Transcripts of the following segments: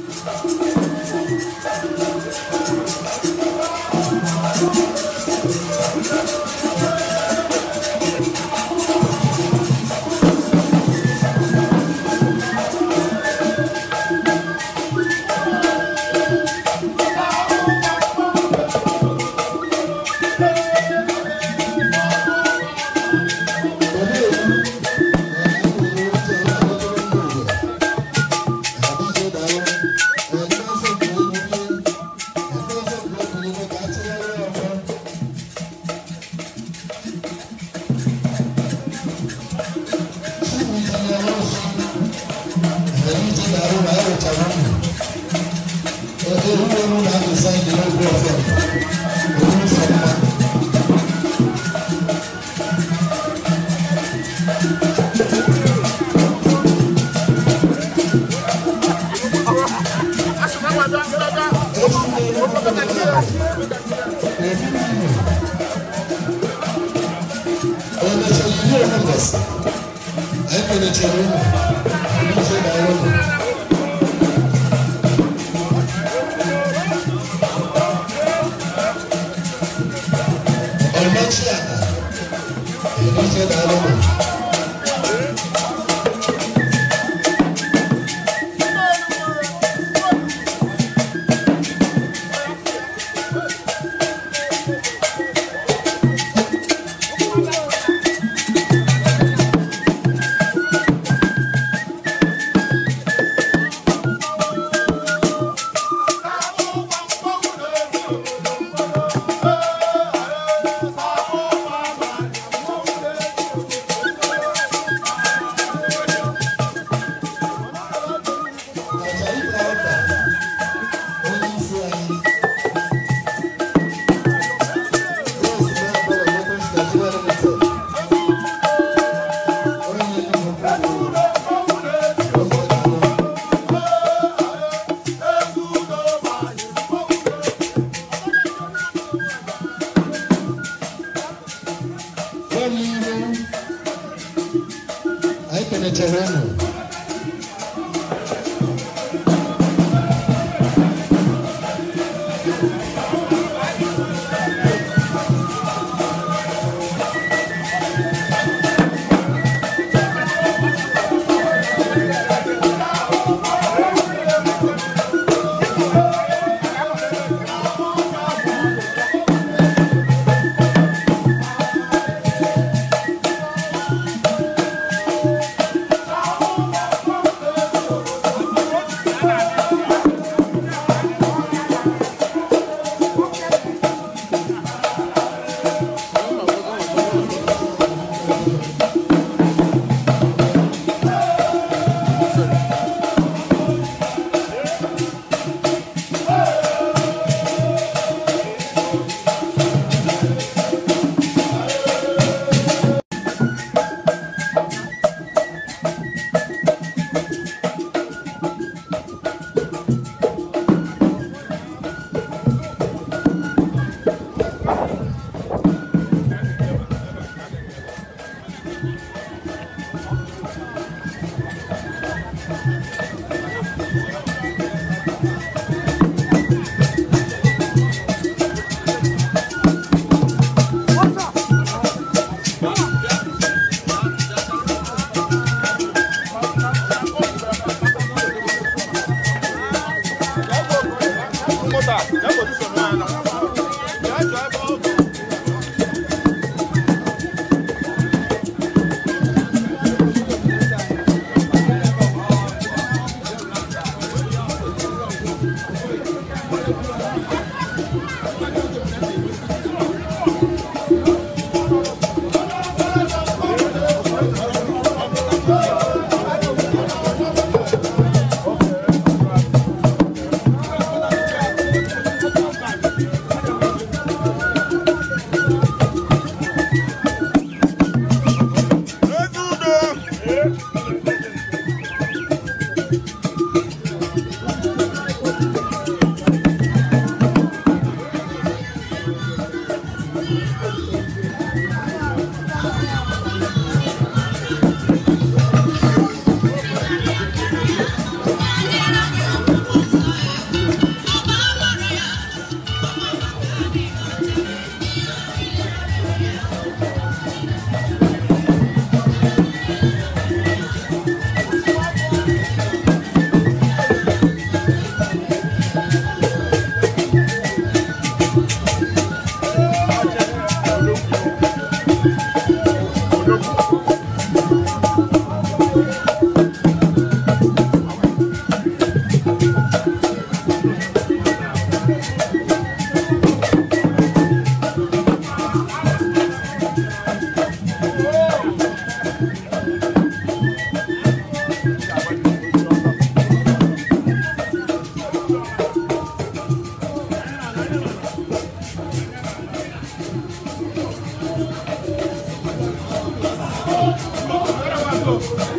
Thank you. Oh,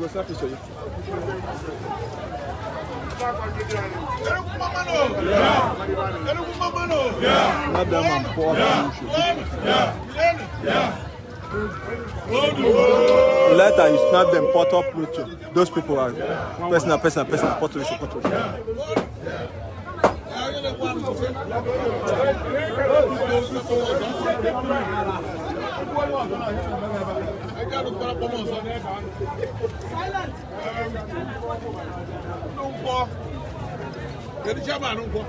go snap picture yìí. Madam and poor Pluto. Later you snap them Porto Pluto. Those people are personal, personal, personal, Porto Rico, Porto Rico. Thank you kẹ̀díṣẹ́ máa ń gbọ́.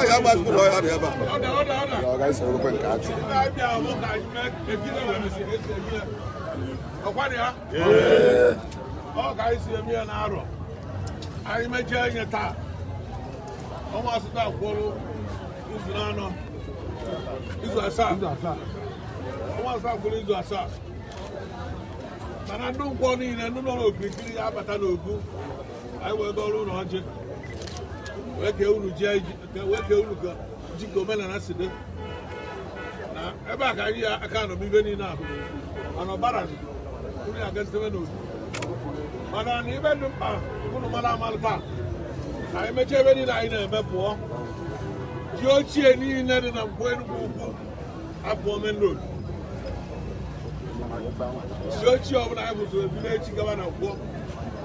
Ọ̀yá máa sùn lọ́yà rẹ̀ bá. Ọ̀gá ọnwa asatọ akwụrụ izu anọ izu asaa ọnwa asatọ akwụrụ izu asaa mana ndị nkwọ niile ndị nọ n'okirikiri ya abata n'ogu anyị wee ọrụ ụlọ ọjị wee kee unu ka ji ka omenala si dị na ebe a ka anyị ya aka nọ ibe niile ahụ, mana ọbara unu ya gasitebe n'ogu mana na ibe dị mkpa ụnụ mara amalụ paakị anyị mechaa ebe niile anyị na-eme pụọ ji ochie niile dị na mkpọ Enugwu ukwu apụọ main road ji ochie ọbụla anyị bụzụrụ ebido echi gaba na nkwọ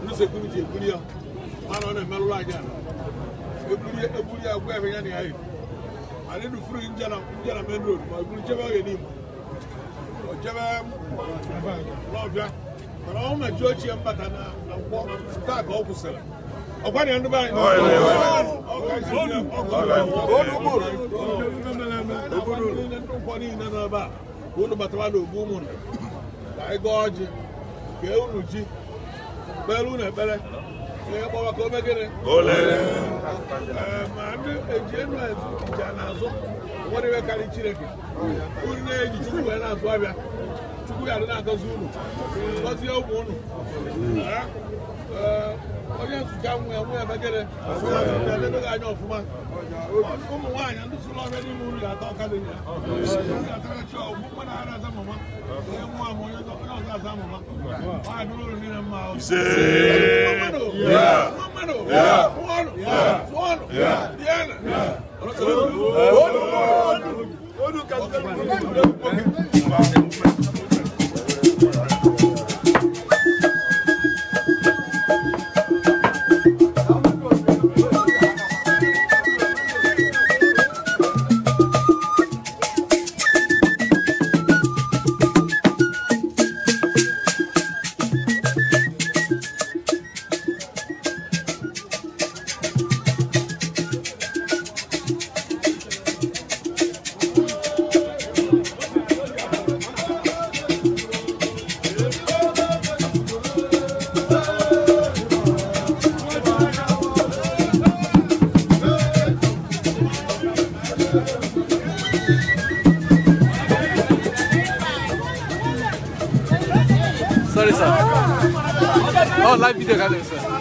ndị sekuriti ebuli ya mana ọ na-emerụrụ anyị ala ebuli ya gwa ebe ya na ya yi anyị dufuru nje na main road ma eburu jebe oge n'Imo o jebe n'ọbịa mana ọ ma ji ochie mbata na nkwọ taa ka ọ kwụsịrị ọkwa na ndụba anyị obodo ụkwọ niile n'ebe a unu batara na ogbu ụmụ ka anyị ọjị unu ji kpere unu ekpere ma ndị eji enu na azụ ụfọdụ karịa chineke na-eji wee na-azụ abịa kwụgharị na-agọzi unu gọzie ụmụ unu onye nzụcha nwa ya nwa ya megere ga-edebeghị anya ọfụma ụmụ nwaanyị ndị sụrụ ọhịa n'ime ụlọ atọ ọkada ya atarachi ọgwụ mma na ara aza mama onye nwa ama onye ọzọ aza mama ọ dịrị ụlọ niile mma mmadụ mmadụ nwa ọrụ tụọ ọrụ diana Odu, odu, odu, odu, odu, odu, odu, odu, odu, Oh, live video, guys.